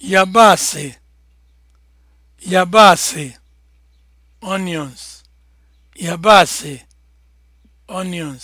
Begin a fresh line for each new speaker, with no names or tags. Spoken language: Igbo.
yabasị onions